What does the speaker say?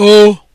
o